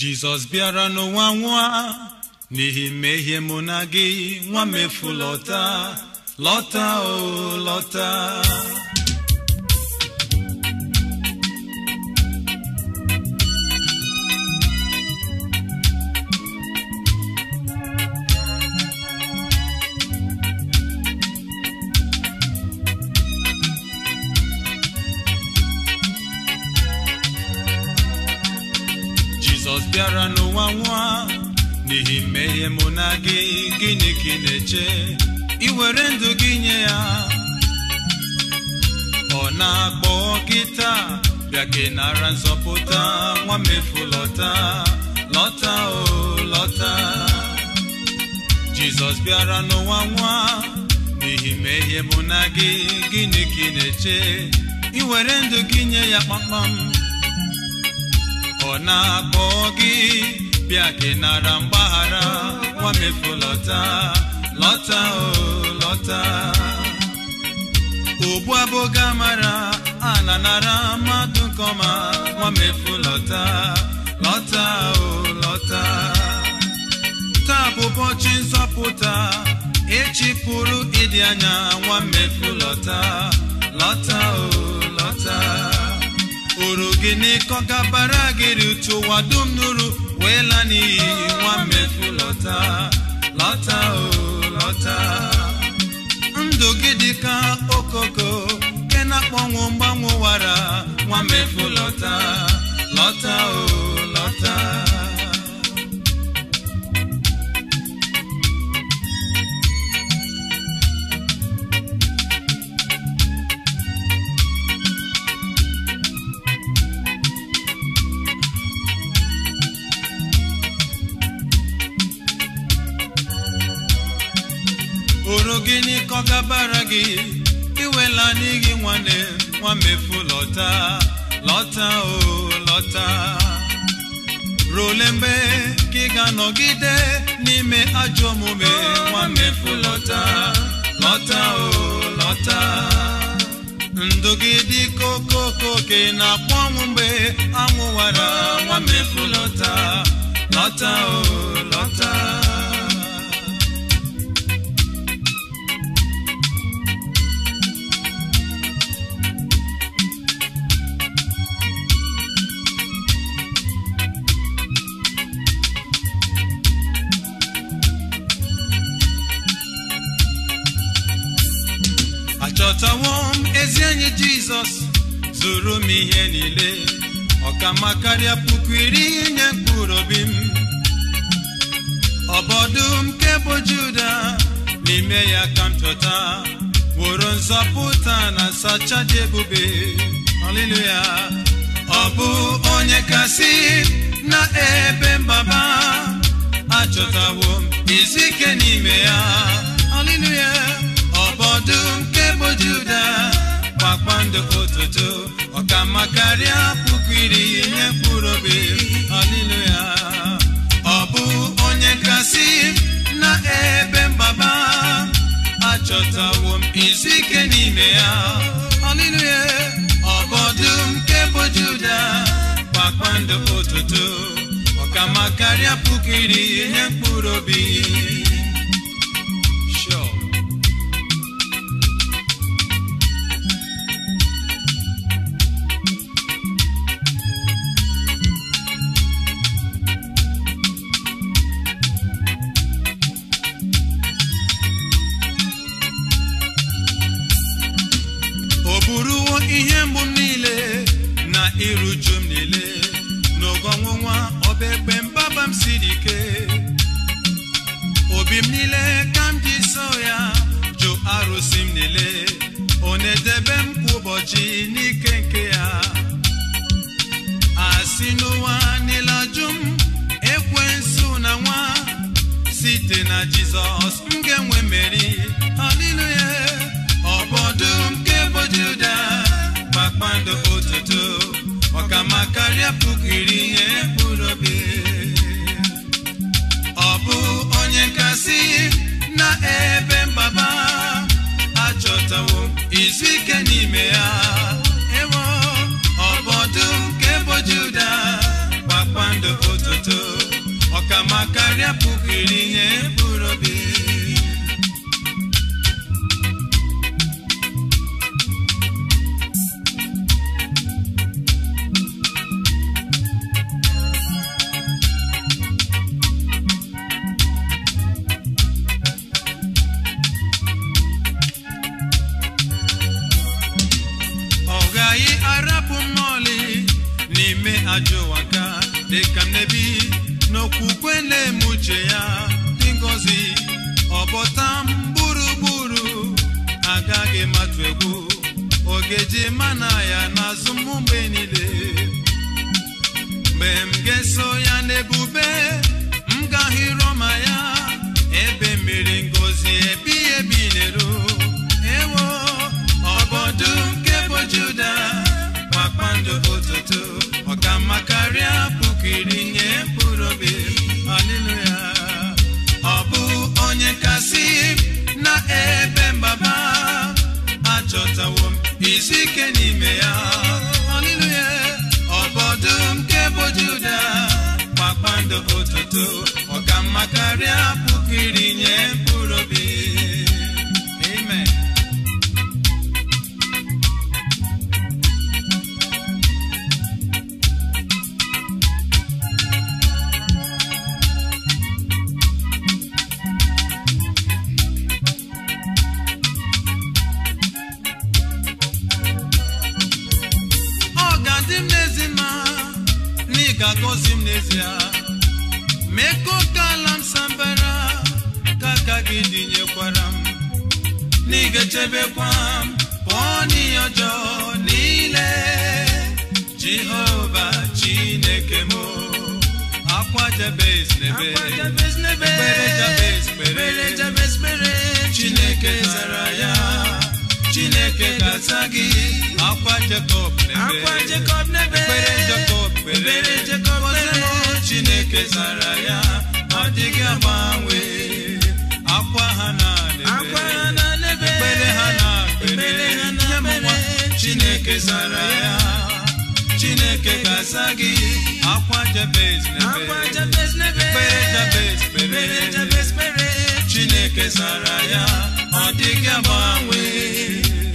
jizọs bịara n'ụwa nwa n'ihi mmehie mụ na gị nwa lọta, lọta o oh, lọta jizọs bịara n'ụwa nwa n'ihi mmehie mụ na gị gịnị ka ị na-eche ị were ndụ gị nye ya ọ na-akpọ gị taa bịa ka nara nzọpụta nwa mefu lọta lọta o lọta jizọs bịara n'ụwa nwa n'ihi mmehie mụ na gị gịnị ka ị na-eche ị were ndụ gị nye ya kpamkpam ọ na-akpọ gị bịa gị nara mgbaghara nwamefu lọta lọta o lọta ogbu abụga mara ana nara mmadụ nkọma nwamefu lọta lọta o lọta taa bụ ụbọchị nzọpụta echi pụrụ ịdị anya mmefu lọta lọta o lọta oro gị n'ịkọ gabara gịrị uche ụwa dum nuru wee la n'iyi nwa mmefu lọta lọta o oh, lọta ndụ gị dị ka okoko ke na-akpọnwụ mgbanwe wara nwa mmefu lọta lọta o oh. gịnị ka gabara gị iwela n'ihi nwanne nwamefu lọta lọta o lọta role mgbe ka ị ga-anọgide n'ime ajọ omume nwamefu lọta lọta o lọta ndụ gị dị na-akpọ ọnwụ mgbe anwụwara nwamefu lọta lọta o jizọs zụrụ m ihe niile ọkama karịa puku iri nye mkpụrụ obi m ọbọdụ nke bụ juda n'ime ya ka m chọta woro nzọpụta na sacha ebube ọ bụ onye kasị na ebe mbaba achọtawo m izu ike n'ime ya haleluya ọbọdụ nke bụ kpakpando otuto ọkama karịa puku iri ihe mkpụrụ obi ọlịlụ ya ọ bụ onye kasị na ebe mgbaba achọtawo m izu ike n'ime ya ọlịlụ ya ọbọdụ nke bụ Juda kpakpando ụtụtụ. ọkama karịa puku iri ihe mkpụrụ obi mmiri uju m niile n'oge ọnwụnwa ọba ekpe mbaba m siri ike obi m niile ka m ji so ya jụ arụsị m niile ọ na-edebe m kwa ụbọchị n'ike nke ya asị n'ụwa niile ajụ m ekwensu na nwa site na jizọs m ga-enwe mmeri haleluya irinye bụrụ obi ọ gaghị arapụ mmụọli n'ime ajọ n'okwukwe na-eme ya dị ngọzi ọbọta mburu gburugburu agaghị matụ egwu ogeji mana ya n'azụ m niile mgbe m ga-eso ya n'ebube m gaghị rọma ya ebe mmiri ngọzi ebi ebi n'ero ewo ọbọdụ nke bụ Juda kpakpando ụtụtụ ọkamma karịa puku iri nye kasị na ka gozi m n'ezie mekọkala m sambara ka aka gị dinyekwara m n'igechebekwa m pụọ n'ihe ọjọọ niile jehova chineke m akwa jabez n'ebe kpere jabez kpere chineke zara ya chineke ga-aza gị akwa jakob n'ebe kwebere jekọbere chineke zara ya ọ dịghị agbanwe akwa ha na lebe. ekpere ha na ekpere ya nwa chineke zara ya chineke ga-aza gị akwa jabez jabez kpere chineke zara ya ọ dịghị agbanwe